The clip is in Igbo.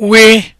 we